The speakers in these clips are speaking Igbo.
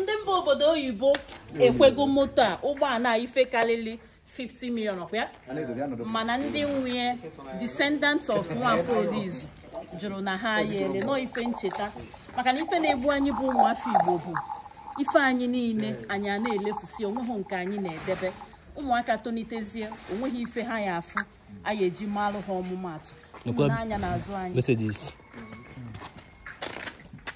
ndị mba obodo oyibo ekwego moto a ụgbọala ife karịrị 50 million ọkwa mana ndị nwunye descendants of nwafọ odizu jụrụ na ha yere nọ ife ncheta maka na ife na-egbu anyị bụ ụmụafọ igbo bụ ife anyị niile anyị a na-elefusi onweghị nke anyị na-edebe ụmụaka tonitezie onweghị ife ha ya afụ anyị eji malụ ha ọmụmatụ ụmụnanya na azụ anyị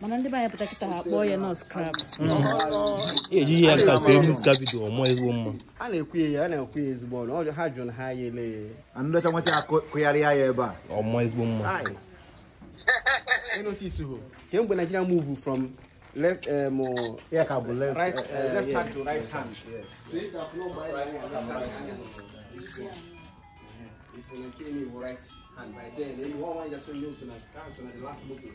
mana ndi baya putakita ha boye no scrubs mm-hmm. ye ji ya ka se mu scrubs do mo ezwo mma a na-ekwu ya a na-ekwu ya ezigbo ọnụ ha jụrụ ha ya ele anụdacha nwata ya kụgharị ya ebe a ọmọ ezigbo mma notice ho kemgbe Nigeria move from left um, eh, yeah, cabo, left, right, uh, uh, left yeah, hand to right hand. Yes. So if that flow by right hand, left hand, this one. If you maintain your right hand, by then, you won't want just use the uh, last booking.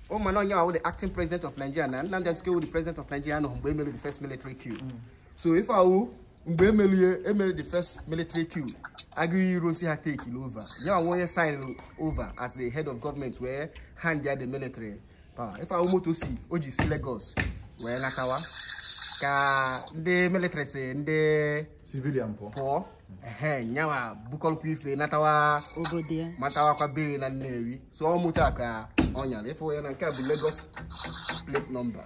Omano Nyawo, the acting president of Nigeria, and Nnamdi Azikiwe, the president of Nigeria, and Mgbe Emelu, the first military coup. Mm. So if I will, Mgbe Emelu, Emelu, the first military coup, Aguiyi Ironsi had taken over. Nyawo Nwoye sign over as the head of government where hand there the military power. If I will move to see, Oji si Lagos, where Nakawa, ka ndị military si ndị civilian pụọ ehe nyawa bukọlụkwa ife natawa ka bee na Nnewi so ọ mụta ka Onion. If we can get the Lagos plate number.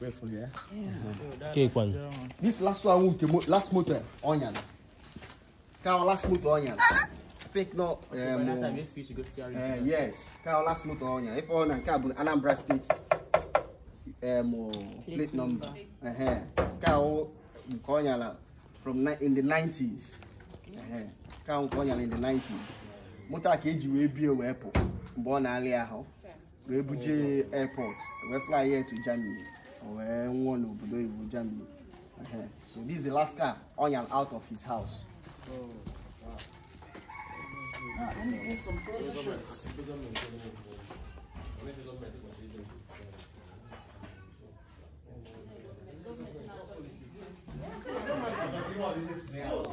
Wait for you. Yeah. Okay, one. This last one, last motor, onion. Cow last motor, onion. Pick no. Um, uh, yes. Cow last motor, onion. If onion, cab, Anambra State. Um, plate number. Uh huh. onion from in the 90s. Uh huh. onion in the 90s. Motorcade ka eji wee bie airport. Born mgbe ọ na-arị ahụ wee buje airport We fly here to Germany wee nwụọ n'obodo oyibo Germany so this is the last car on and out of his house Oh,